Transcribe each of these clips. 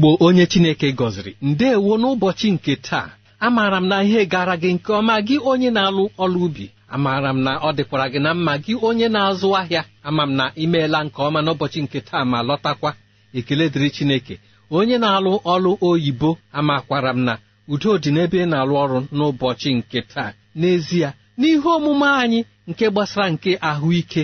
Igbo onye Chineke gọziri ndeewo n'ụbọchị nke taa amaara m na ihe gara gị nke ọma gị onye na-alụ ọlụ ubi amaara m na ọ dịkwara gị na mma gị onye na-azụ ahịa ama m na imeela nke ọma n'ụbọchị nke taa ma lọtakwa ekele dịrị Chineke onye na-alụ ọlụ oyibo amakwara m na udo dị n'ebe ị na-alụ ọrụ n'ụbọchị nke taa n'ezie n'ihe omume anyị nke gbasara nke ahụike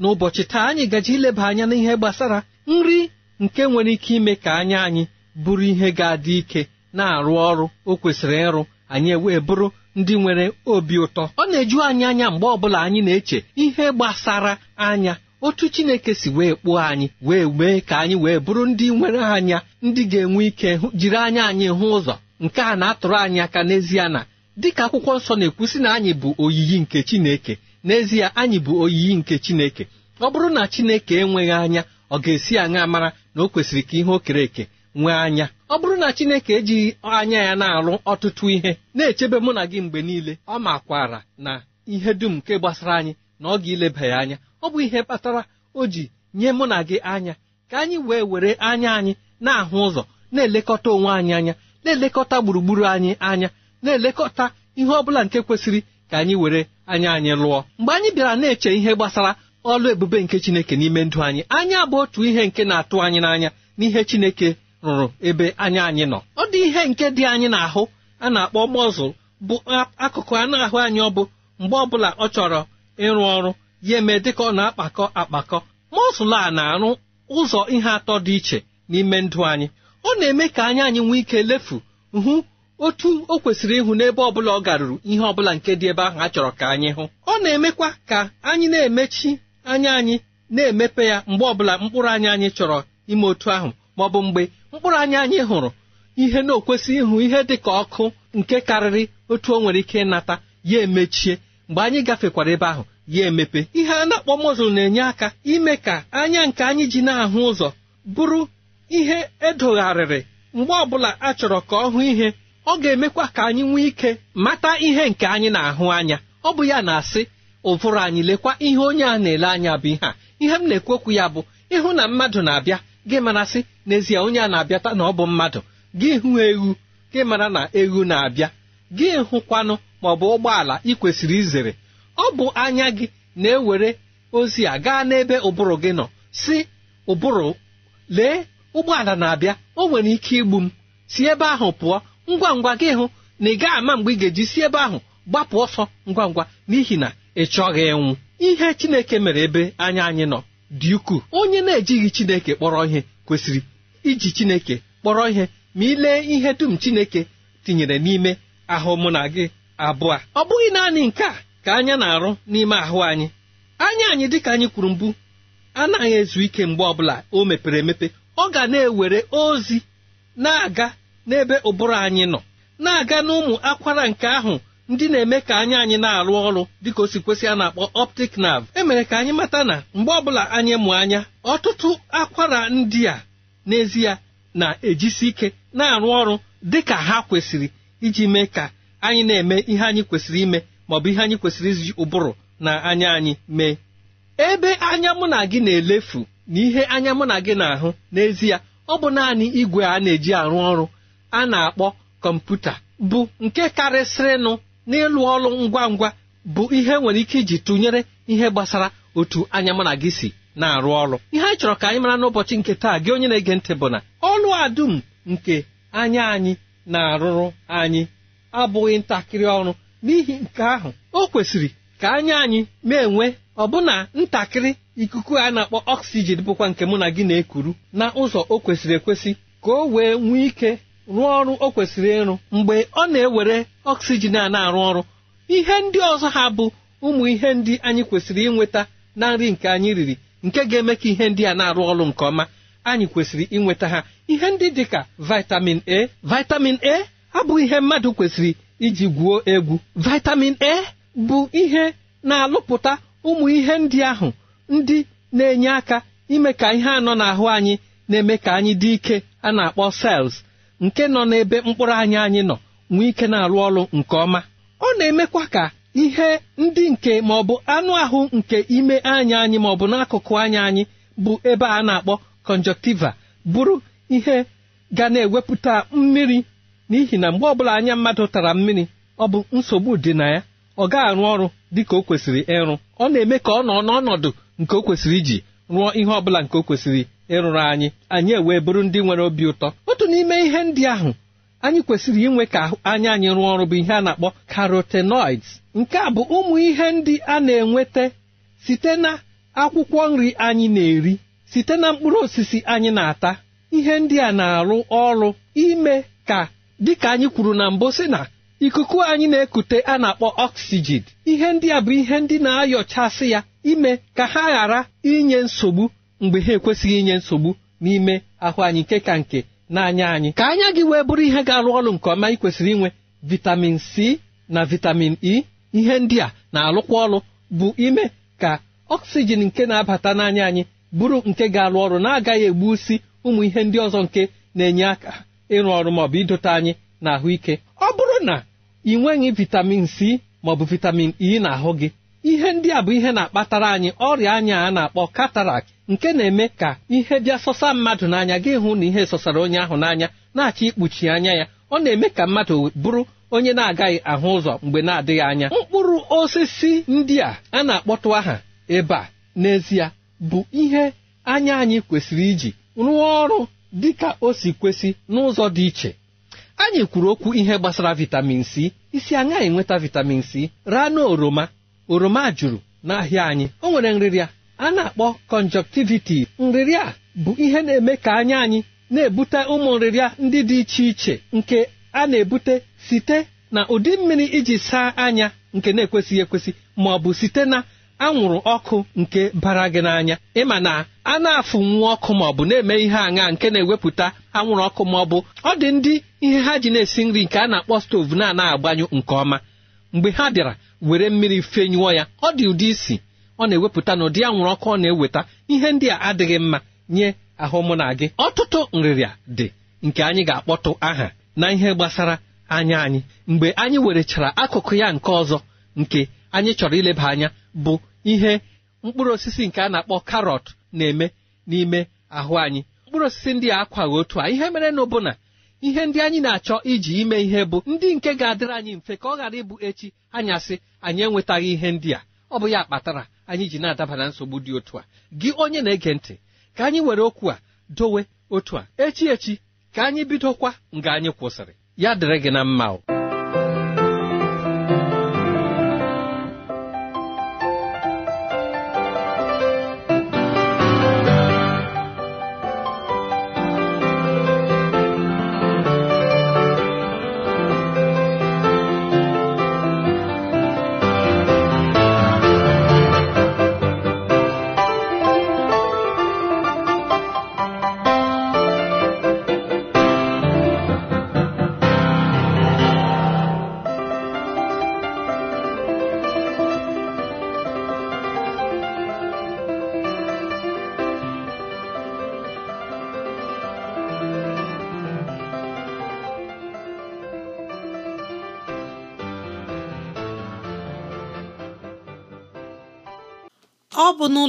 n'ụbọchị taa anyị gaji ileba anya n'ihe gbasara nri nke nwere ike ime ka anya anyị bụrụ ihe ga-adị ike na-arụ ọrụ o kwesịrị ịrụ anyị wee bụrụ ndị nwere obi ụtọ ọ na-eju anyị anya mgbe ọbụla anyị na-eche ihe gbasara anya otu chineke si wee kpụọ anyị wee mee ka anyị wee bụrụ ndị nwere anya ndị ga-enwe ike jiri anya anyị hụ ụzọ nke a na-atụrụ anyị aka n'ezie na dịka akwụkwọ nsọ na-ekwusi na anyị bụ oyiyi nke chineke n'ezie anyị bụ oyiyi nke chineke ọ bụrụ na chineke enweghị anya ọ ga-esi anya mara na o kwesịrị ka ihe o kere eke nwee anya ọ bụrụ na chineke ejighị anya ya na-alụ ọtụtụ ihe na-echebe mụ na gị mgbe niile ọ makwara na ihe dum nke gbasara anyị na ọ ga-ileba ya anya ọ bụ ihe kpatara o ji nye mụ na gị anya ka anyị wee were anya anyị na-ahụ ụzọ na-elekọta onwe anyị anya na-elekọta gburugburu anyị anya na-elekọta ihe ọ bụla nke kwesịrị ka anyị were anya anyị lụọ mgbe anyị bịara na-eche ihe gbasara ọlụ ebube nke Chineke n'ime ndụ anyị anya bụ otu ihe nke na-atụ anyị n'anya n'ihe Chineke rụrụ ebe anya anyị nọ ọ dị ihe nke dị anyị n'ahụ a na-akpọ mọzụl bụ akụkụ anụ ahụ anyị ọ bụ mgbe ọbụla ọ chọrọ ịrụ ọrụ ya eme ka ọ na-akpakọ akpakọ mọzụl a na-arụ ụzọ ihe atọ dị iche n'ime ndụ anyị ọ na-eme ka anya anyị nwee ike lefu hụ otu o kwesịrị ịhụ n'ebe bụla ọ garuru ihe ọbụla nke dị ebe ahụ a chọrọ ka anyị hụ ọ na-emekwa ka anyị na-emechi anya anyị na-emepe ya mgbe ọbụla mkpụrụ anya anyị chọrọ ime otu ahụ ma ọ bụ mgbe mkpụrụ anya anyị hụrụ ihe na-okwesị ịhụ ihe dị ka ọkụ nke karịrị otu o nwere ike ịnata ya emechie mgbe anyị gafekwara ebe ahụ ya emepe ihe a na-akpọ mozul na-enye aka ime ka anya nke anyị ji na-ahụ ụzọ bụrụ ihe edogharịrị mgbe ọbụla a chọrọ ka ọ hụ ihe ọ ga-emekwa ka anyị nwee ike mata ihe nke anyị na-ahụ anya ọ bụ ya na-asị ụvụrụ anyị lekwa ihe onye a na-ele anya bụ ihe a ihe m na-ekwekwu ya bụ ịhụ na mmadụ na-abịa gị mara sị n'ezie onye a na-abịata na ọ bụ mmadụ gị hụ ewu gị mara na ewu na-abịa gị hụkwanụ ma ọ bụ ụgbọala ị kwesịrị izere ọ bụ anya gị na-ewere ozi a gaa n'ebe ụbụrụ gị nọ si ụbụrụ lee ụgbọala na-abịa o nwere ike igbu m si ebe ahụ pụọ ngwa ngwa gị hụ na ị gaa ama mgbe ị ga-eji si ebe ahụ gbapụ ọsọ ngwa ngwa n'ihi na ị chọghị ịnwụ ihe Chineke mere ebe anya anyị nọ dị ukwuu onye na-ejighị Chineke kpọrọ ihe kwesịrị iji Chineke kpọrọ ihe ma ịlee ihe dum Chineke tinyere n'ime ahụ mụ na gị abụọ ọ bụghị naanị nke a ka anya na-arụ n'ime ahụ anyị anya anyị dịka anyị kwuru mbụ anaghị ezu ike mgbe ọbụla o mepere emepe ọ ga na-ewere ozi na-aga n'ebe ụbụrụ anyị nọ na-aga n'ụmụ akwara nke ahụ ndị na-eme ka anya anyị na-arụ ọrụ dịka o si kwesị a na-akpọ optic nerve emere ka anyị mata na mgbe ọbụla anyị mụ anya ọtụtụ akwara ndị a n'ezie na-ejisi ike na-arụ ọrụ dị ka ha kwesịrị iji mee ka anyị na-eme ihe anyị kwesịrị ime maọbụ ihe anyị kwesịrị iji ụbụrụ na anya anyị mee ebe anya mụ na gị na-elefu na ihe anya mụ na gị na-ahụ n'ezie ọ bụ naanị igwe a na-eji arụ ọrụ a na-akpọ kọmputa bụ nke karịsịrịnụ n'ịlụ ọrụ ngwa ngwa bụ ihe nwere ike iji tụnyere ihe gbasara otu anya na gị si na-arụ ọrụ ihe anyị chọrọ ka anyị mara n'ụbọchị nke taa gị onye na-ege ntị bụ na ọlụ adum nke anya anyị na-arụrụ anyị abụghị ntakịrị ọrụ n'ihi nke ahụ o kwesịrị ka anya anyị na-enwe ọbụna ntakịrị ikuku a na-akpọ ọksijin bụkwa nke mụ na gị na-ekuru na ụzọ o kwesịrị ekwesị ka o wee nwee ike rụọ ọrụ o kwesịrị ịrụ mgbe ọ na-ewere oksijin a na-arụ ọrụ ihe ndị ọzọ ha bụ ụmụ ihe ndị anyị kwesịrị inweta na nri nke anyị riri nke ga-eme ka ihe ndị a na-arụ ọrụ nke ọma anyị kwesịrị inweta ha ihe ndị dị ka vitamin a vitamin a abụghị ihe mmadụ kwesịrị iji gwuo egwu vitamin a bụ ihe na-alụpụta ụmụ ihe ndị ahụ ndị na-enye aka ime ka ihe anọ n'ahụ anyị na-eme ka anyị dị ike a na-akpọ cells nke nọ n'ebe mkpụrụ anyị anyị nọ nwee ike na-arụ ọrụ nke ọma ọ na-emekwa ka ihe ndị nke ma ọ bụ anụ ahụ nke ime anya anyị ma ọ bụ n'akụkụ anya anyị bụ ebe a na-akpọ conjunctiva bụrụ ihe ga na-ewepụta mmiri n'ihi na mgbe ọbụla anya mmadụ tara mmiri ọ bụ nsogbu dị na ya ọ ga-arụ ọrụ dị ka o kwesịrị ịrụ ọ na-eme ka ọ nọ n'ọnọdụ nke o kwesịrị iji rụọ ihe ọbụla nke o kwesịrị ịrụrụ anyị anyị ewee bụrụ ndị nwere obi ụtọ otu n'ime ihe ndị ahụ anyị kwesịrị inwe ka anya anyị rụọ ọrụ bụ ihe a na-akpọ carotenoids nke a bụ ụmụ ihe ndị a na-enweta site na akwụkwọ nri anyị na-eri site na mkpụrụ osisi anyị na-ata ihe ndị a na-arụ ọrụ ime ka dịka anyị kwuru na mbụ sị na ikuku anyị na-ekute a na-akpọ oxygen ihe ndị a bụ ihe ndị na-ayọchasị ya ime ka ha ghara inye nsogbu mgbe ha ekwesịghị inye nsogbu n'ime ahụ anyị nke ka nke n'anya anyị ka anya gị wee bụrụ ihe ga-arụ ọrụ nke ọma ị kwesịrị inwe vitamin c na vitamin e ihe ndị a na-alụkwa ọrụ bụ ime ka oxygen nke na-abata n'anya anyị bụrụ nke ga-alụ ọrụ na-agaghị egbusi ụmụ ihe ndị ọzọ nke na-enye aka ịrụ ọrụ maọbụ idote anyị na ahụike ọ bụrụ na ị nweghị vitamin c maọbụ vitamin e na ahụ gị ihe ndị a bụ ihe na-akpatara anyị ọrịa anya a na-akpọ katarak nke na-eme ka ihe bịa sọsa mmadụ n'anya gị hụ na ihe sọsara onye ahụ n'anya na-achọ ikpuchi anya ya ọ na-eme ka mmadụ bụrụ onye na-agaghị ahụ ụzọ mgbe na-adịghị anya mkpụrụ osisi ndị a a na-akpọtụ aha ebe a n'ezie bụ ihe anya anyị kwesịrị iji rụọ ọrụ dị ka o si kwesị n'ụzọ dị iche anyị kwuru okwu ihe gbasara vitamin c isi anya enweta vitamin c raa oroma oroma juru n'ahịa anyị o nwere nrịrịa a na-akpọ kọnjọktiviti nrịrịa bụ ihe na-eme ka anya anyị na-ebute ụmụ nrịrịa ndị dị iche iche nke a na-ebute site na ụdị mmiri iji saa anya nke na-ekwesịghị ekwesị ma ọ bụ site na anwụrụ ọkụ nke bara gị n'anya ịma na a na-afụnwu ọkụ ma ọ bụ na-eme ihe aṅa nke na-ewepụta anwụrụ ọkụ ma ọ bụ ọ dị ndị ihe ha ji na-esi nri nke a na-akpọ stovu na-anaghị agbanyụ nke ọma mgbe ha bịara were mmiri fenyụọ ya ọ dị ụdị isi ọ na-ewepụta na ụdị anwụrụ ọkụ ọ na-eweta ihe ndị a adịghị mma nye ahụ mụ na gị ọtụtụ nrịrịa dị nke anyị ga-akpọtụ aha na ihe gbasara anya anyị mgbe anyị werechara akụkụ ya nke ọzọ nke anyị chọrọ ileba anya bụ ihe mkpụrụ osisi nke a na-akpọ karọt na-eme n'ime ahụ anyị mkpụrụ osisi ndị a akwaghị otu a ihe mere na na ihe ndị anyị na-achọ iji ime ihe bụ ndị nke ga-adịrị anyị mfe ka ọ ghara ịbụ echi anyasị anyị enwetaghị ihe ndị a ọ bụ ya kpatara anyị ji na-adaba na nsogbu dị otu a gị onye na-ege ntị ka anyị were okwu a dowe otu a echi echi ka anyị bidokwa nga anyị kwụsịrị ya dịrị gị na mma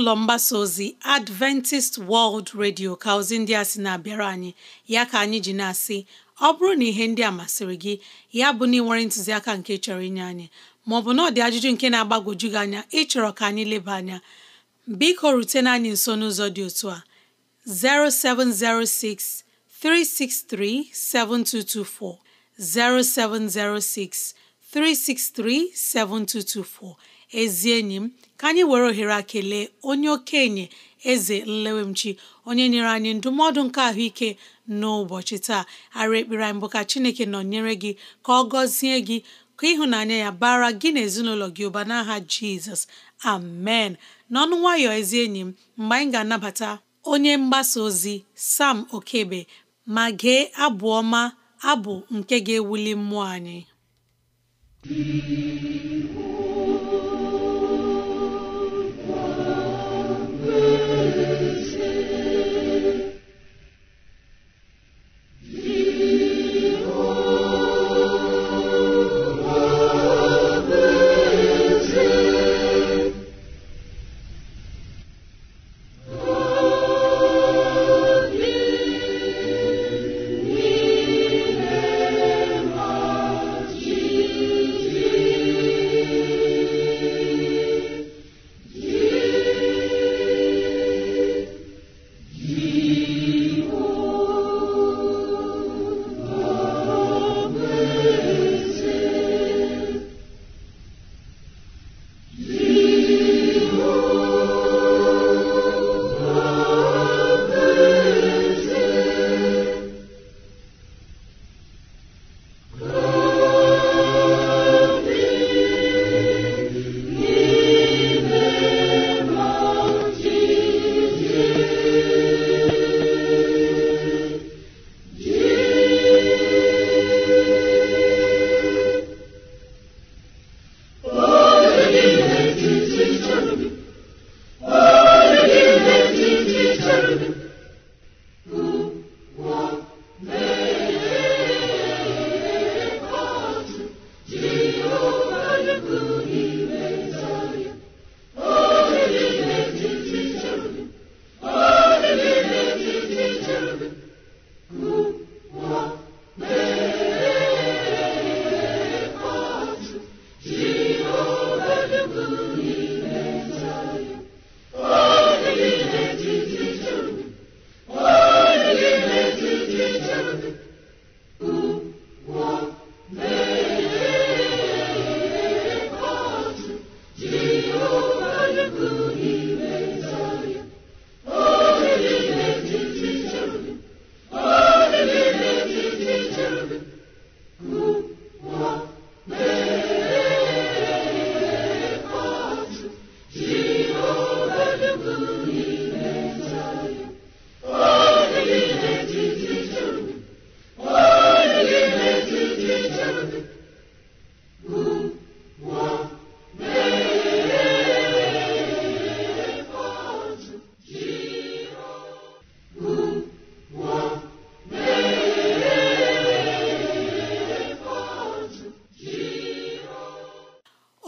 ụlọ mgbasa ozi Adventist World Radio ka ozi ndị a sị na-abịara anyị ya ka anyị ji na-asị ọ bụrụ na ihe ndị a masịrị gị ya bụ na ịnwere ntụziaka nke chọrọ inye anyị maọbụ na ọ ajụjụ nke na-agbagwoju gị anya ịchọrọ ka anyị leba anya biko rutena anyị nso n'ụzọ dị otu a 0706 363 7224 0706 363 7224 ezi enyi m ka anyị were ohere akele kelee onye okenye eze nlewemchi onye nyere anyị ndụmọdụ nke ahụike n'ụbọchị taa ara ekpere anyị bụ ka chineke nọ nyere gị ka ọ gọzie gị ka ịhụnanya ya bara gị na ezinụlọ gị ụba n'aha jizọs amen n'ọnụ nwayọ ezi enyi m mgbe anyị ga-anabata onye mgbasa ozi sam okebe ma gee abụ ọma abụ nke ga-ewuli mmụọ anyị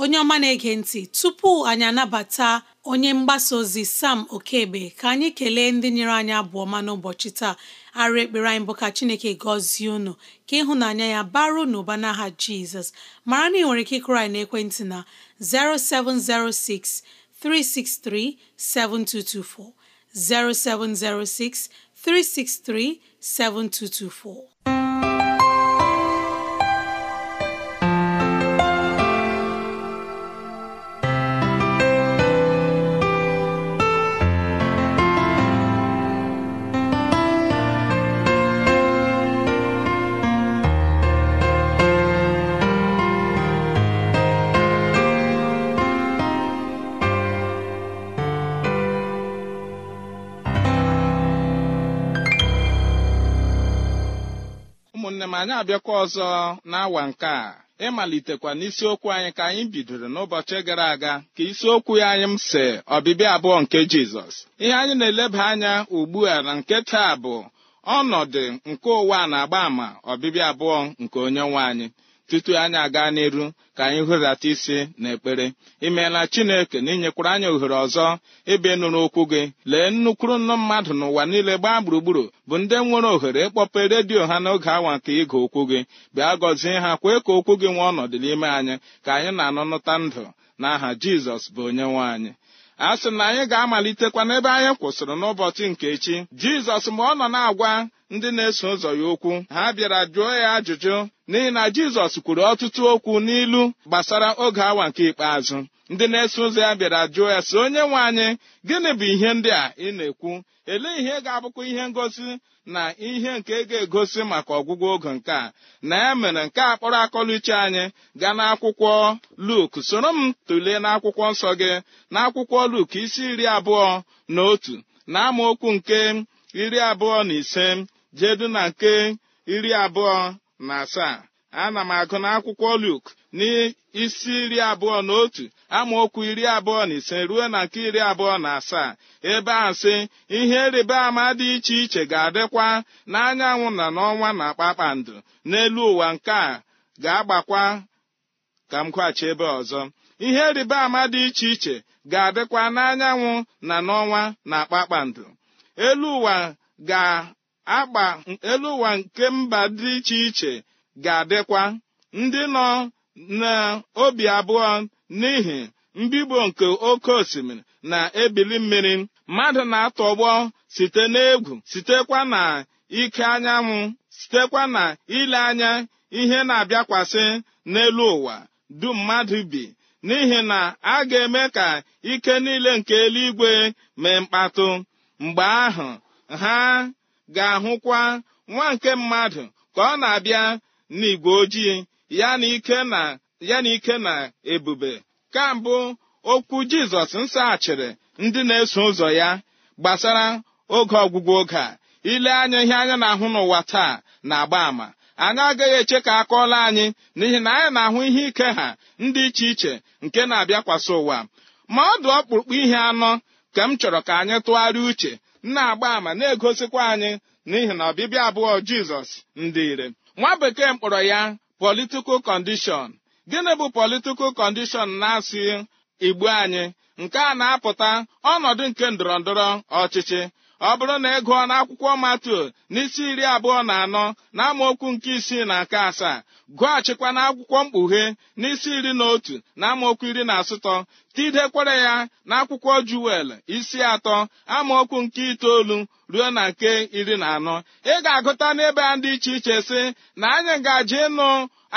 onye ọma na-ege ntị tupu anyị anabata onye mgbasa ozi sam okebe ka anyị kelee ndị nyere anyị abụọ ọma n'ụbọchị taa arụ ekpere anyị bụ ka chineke gọzie unu ka ịhụnanya ya baro n'ụba n'aha jizọs mara na ị nwere ike ịkụrụ anyị n'ekwentị na 0706 363 7224 0706 363 7224 ụmụnne m anyị abịakwa ọzọ n'awa nke a ịmalitekwa n'isiokwu anyị ka anyị bidoro n'ụbọchị gara aga ka isiokwu ya anyị m si ọbịbịa abụọ nke jizọs ihe anyị na-eleba anya ugbu a na nke taa bụ ọnọdụ nke ụwa na-agba ama ọbịbịa abụọ nke onye nwe anyị tutu anyị aga n'iru ka anyị hụdata isi na ekpere imeela chineke na inyekwara anyị ohere ọzọ ịbịa nụrụ okwu gị lee nnukwuru nnu mmadụ n'ụwa niile gbaa gburugburu bụ ndị nwere ohere ịkpọpe redio ha n'oge awa nke ịga okwu gị bịa gọzie ha kwee ka okwu gị nwee ọnọdụ n'ime anyị ka anyị na-anụnụta ndụ n'aha jizọs bụ onye nwe anyị a sị na anyị ga-amalitekwa n'ebe anyị kwụsịrị n'ụbọchị nke echi jizọs mgbe ọ nọ na-agwa ndị na-eso ụzọ ya okwu ha bịara jụọ ya ajụjụ n'ihi na jizọs kwuru ọtụtụ okwu n'ilu gbasara oge awa nke ikpeazụ ndị na-eso ụzọ ya bịara jụọ ya sị onye nwe anyị gịnị bụ ihe ndị a ị na-ekwu elee ihe ga-abụkwa ihe ngosi na ihe nke ga-egosi maka ọgwụgwọ oge nke a na ya mere nke a kpọrọ iche anyị gaa n'akwụkwọ Luk soro m tụlee n'akwụkwọ nsọ gị n'akwụkwọ Luk isi iri abụọ na otu na amaokwu nke iri abụọ na ise jedu na nke iri abụọ na asaa ana m agụ akwụkwọ Luk n'isi iri abụọ na otu amaokwu iri abụọ na ise ruo na nke iri abụọ na asaa ebe a sị ihe ịrịba ama dị iche iche ga-adịkwa n'anyanwụ na n'ọnwa na kpakpando n'elu ụwa nke a ga-agbakwa ka m kwaghachi ebe ọzọ ihe ịrịba ama dị iche iche ga-adịkwa n'anyanwụ na n'ọnwa na kpakpando elu ụwa ga agba elu ụwa nke mba dị iche iche ga-adịkwa ndị nọ n'obi abụọ n'ihi mbibo nke oke osimiri na-ebili mmiri mmadụ na-atọgbọ site n'egwu sitekwa na ike anyanwụ sitekwa na ile anya ihe na-abịakwasị n'elu ụwa dum mmadụ bi n'ihi na a ga-eme ka ike niile nke eluigwe mee mkpatụ mgbe ahụ ha ga-ahụkwa nwa nke mmadụ ka ọ na-abịa n'igwe ojii ya na ike na ebube ka mbụ okwu jizọs nsaghachiri ndị na-eso ụzọ ya gbasara oge ọgwụgwụ oge a ile anya ihe anya na-ahụ n'ụwa taa na-agba àmà anyị agaghị eche ka a kọọla anyị n'ihi na anyị na-ahụ ihe ike ha ndị iche iche nke na-abịakwasị ụwa ma ọ dị ọkpụrụkpụ ihe anọ ka m chọrọ ka anyị tụgharịa uche na-agba ama na-egosikwa anyị n'ihi na ọbịbịa abụọ jizọs ndị ire nwa bekee mkpọrọ ya politikal kọndishọn gịnị bụ political kọndishọn na asị igbo anyị nke a na-apụta ọnọdụ nke ndọrọndọrọ ọchịchị ọ bụrụ na ị gụọ n'akwụkwọ matu n'isi iri abụọ na anọ na amaokwu nke isii na nke asaa gụọchikwa n'akwụkwọ mkpughe n'isi iri na otu na amaokwu iri na asatọ tidekwere ya n'akwụkwọ juwel isi atọ amaokwu nke itoolu ruo na nke iri na anọ ị ga-agụta n'ebe a dị iche iche sị na anyị ngaji ịnụ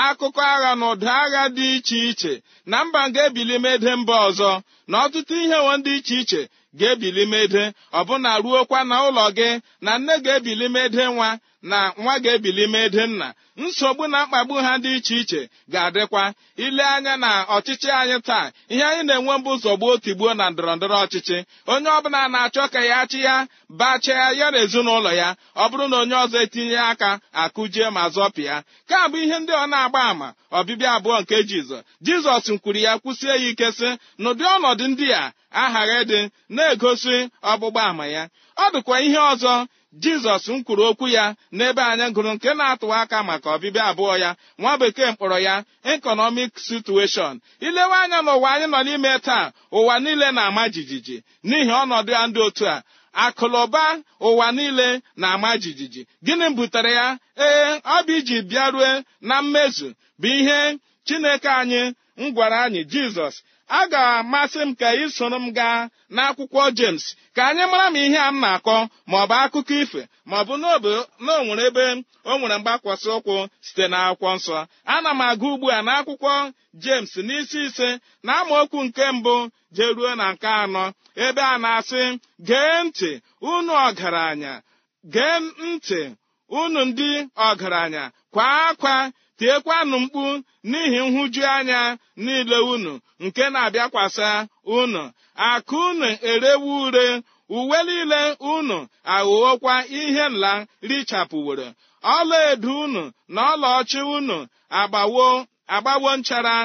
akụkọ agha na ụda agha dị iche iche na mba nga ebili mede mba ọzọ na ọtụtụ ihe wo dị iche iche ga-ebili mede ọbụna ruokwa na ụlọ gị na nne ga-ebili mede nwa na nwa ga-ebili mede nna nsogbu na mkpagbu ha dị iche iche ga-adịkwa ile anya na ọchịchị anyị taa ihe anyị na-enwe mbụ zọgbuo tigbuo na ndọrọndọrọ ọchịchị onye ọbụla na-achọ ka ya achị ya bachaa ya na ezinụlọ ya ọ bụrụ na onye ọzọ etinye aka akụjie ma zọpịa ka bụ ihe ndị ọ na-agba àmà ọbịbịa abụọ nke jizọ jizọs nkwuru ya kwụsie ya ike sị n'ụdị ọnọdụ ndị a aghaghị dị na-egosi ọgbụgba àmà ya ọ dịkwa ihe ọzọ jizọs m kwuru okwu ya n'ebe anyị gụrụ nke na-atụwa aka maka ọbịbịa abụọ ya nwa bekee mkpọrọ ya ekọnọmik situeshọn ilewe anya n'ụwa anyị nọ n'ime taa ụwa niile na-ama jijiji n'ihi ọnọdụ ya ndị otu a akụlụba ụwa niile na-ama jijiji gịnị butere ya ee ọ bụ iji bịarue na mmezu bụ ihe chineke anyị m gwara anyị jizọs a ga-amasị m ka ị soro m gaa n'akwụkwọ James ka anyị mara m ihe a m na-akọ maọbụ akụkọ ife maọbụ ọ na onwere ebe o nwere mgbakwasị ụkwụ site n'akwụkwọ nsọ ana m aga ugbu a n'akwụkwọ James n'isi ise na amaokwu nke mbụ jeruo na nke anọ ebe a na-asị gee ntị unu ọgaranya gee ntị unu ndị ọgaranya kwa akwa tiekwanụ mkpu n'ihi nhụju anya niile unu nke na-abịakwasa unu akụ unu erewu ure uwe niile unu aghụghọkwa ihe nla richapụworo edo unu na ọlaọchị unu agbawo agbawo nchara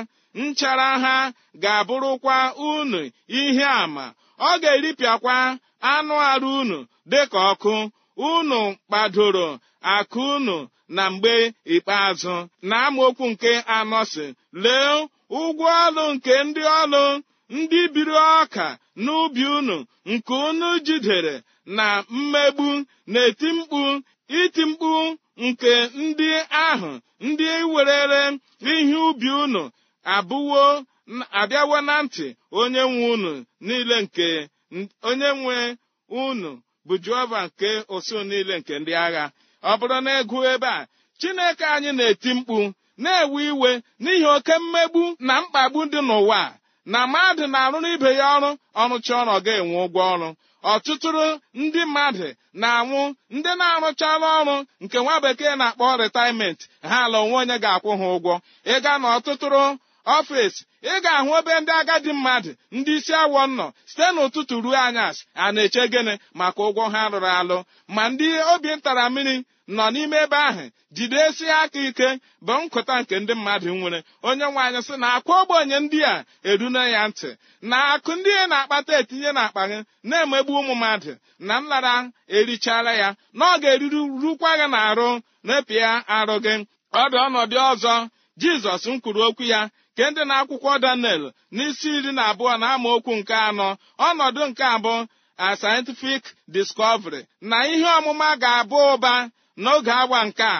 nchara ha ga-abụrụkwa unu ihe ama ọ ga-eripịakwa anụ arụ unu dịka ọkụ unu kpadoro akụ unu na mgbe ikpeazụ na amaokwu nke anọ si lee ụgwọ ọlụ nke ndị ọlụ ndị biri ọka n'ubi unu nke unu jidere na mmegbu na-eti mkpu iti mkpu nke ndị ahụ ndị werere ihe ubi unu abụwo abịawo na ntị onye nwe unu niile nke onye nwe unu bụ jehova nke osu niile nke ndị agha ọ bụrụ na ịgụ e ebe a chineke anyị na-eti mkpu na-ewe iwe n'ihi oke mmegbu na mkpagbu dị n'ụwa na mmadụ na-arụrụ ibe ya ọrụ ọrụcha ọrụ ọ ga-enwe ụgwọ ọrụ ọtụtụrụ ndị mmadụ na-anwụ ndị na-arụchala ọrụ nke nwa bekee na-akpọ rịtaịment ha ala onwe onye ga-akwụ ha ụgwọ ịga na ọtụtụrụ ọfịs ị ga-ahụ ebe ndị agadi mmadụ ndị isi awọ nọ site n'ụtụtụ ruo anyasị a na-eche gịnị maka ụgwọ ha rụrụ alụ ma ndị obi ntara mmiri nọ n'ime ebe ahụ jidesi aka ike bụ nkụta nke ndị mmadụ nwere onye nwaanyị sị na akwa ogbenye ndị a erune ya ntị na akụ ndị na-akpata etinye n'akpa gị na-emegbu ụmụ mmadụ na nlara erichara ya na ọ ga rukwa gị na arụ na arụ gị ọ dị ọnọdụ ọzọ jizọs m kwuru okwu ya ke ndị na-akwụkwọ daniel n'isi iri na abụọ na okwu nke anọ ọnọdụ nke abụọ a scientific discovery na ihe ọmụma ga-abụ ụba n'oge awa nke a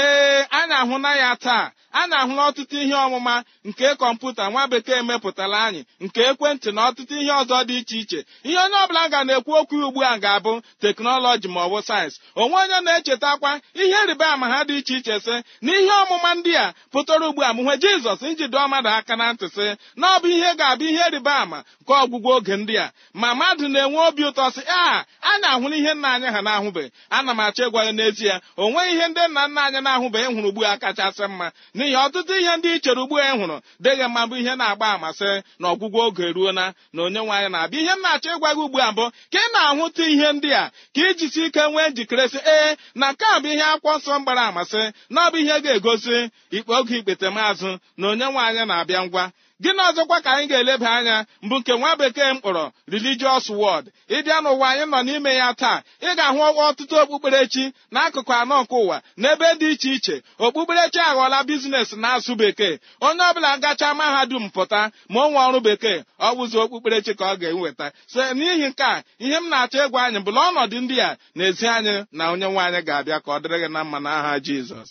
ee anyị ahụna ya taa a na-ahụ ọtụtụ ihe ọmụma nke kọmputa nwa bekee mepụtara anyị nke ekwentị na ọtụtụ ihe ọzọ dị iche iche ihe onye ọbụla ga na-ekwu okwu ugbu a ga-abụ teknọlọji ma ọ bụ sayensị onwe onye na-echetakwa ihe rịba ama ha dị iche iche sị na ihe ọmụma ndị a pụtara ugbu a mụnwe jizọs njide mmadụ aka na ntị sị na ọ bụ ihe ga-abụ ihe rịba ama ka ọgwụgwọ oge ndị a ma mmadụ na-enwe obi ụtọ sị a a na-ahụla ihe nna anyị ha na-ahụbeghị ana m achọ ịgwa ya n'ezie o ihe ndị nna nna anyị na-ahụbeghị hụrụ ugbu a kachasị mma n'ihi ọtụtụ ihe ndị ichere chere ugbu a e hụrụ dịghị mma bụ ihe na-agba amasị na ọgwụgwọ oge ruo na onye onyenwe na-abịa ihe m na-achọ ịgwa gị ugbu a mbụ ka ị na-ahụta ihe ndị a ka ijisi ike nwee njikere sị ee na nke a bụ ihe akwọ nsọ mgbara amasị na ọ bụ ihe ga-egosi ikpe oge ikpete maazụ na onyenwe nwaanyị na-abịa ngwa gịnị ọzọkwa ka anyị ga-eleba anya mbụ nke nwa bekee m kpọrọ religious world ịbịa n'ụwa anyị nọ n'ime ya taa ị ga-ahụ ọtụtụ okpukperechi n'akụkụ anọ nke ụwa n'ebe dị iche iche okpukperechi aghọọla biznes na asụ bekee onye ọbụla gacha mahadum pụta ma ọ nwe ọrụ bekee ọ wụzi okpukperechi ka ọ ga-eweta so n'ihi nke a ihe m na-achọ ịgwa anyị bụla ọnọdụ ndị a na ezi anyị na onye nwe anyị ga-abịa ka ọ dịrị gị na mma n'aha Jizọs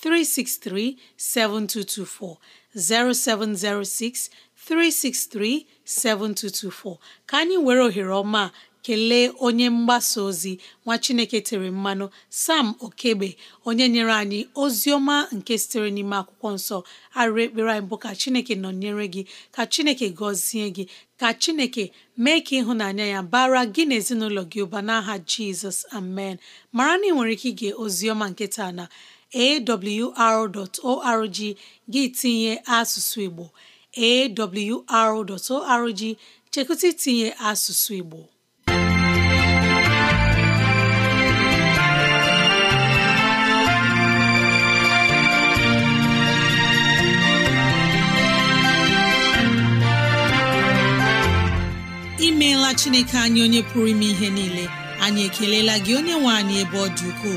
363 7224 0706 363 7224 ka anyị were ohere ọma kelee onye mgbasa ozi nwa Chineke tere mmanụ Sam Okegbe onye nyere anyị ozi ọma nke sitere n'ime akwụkwọ nsọ arịrị ekpere anyị bụ ka Chineke nọnyere gị ka Chineke gọzie gị ka Chineke mee ka ịhụnanya ya bara gị na ezinụlọ gị ụba n'aha Jizọs amen mara na ị nwere ike ige ozi ọma na awr.org gị tinye asụsụ Igbo awr.org chekụta itinye asụsụ Igbo imeela Chineke anyị onye pụrụ ime ihe niile anyị ekelela gị onye nwe anyị ebe ọ dị ukwuu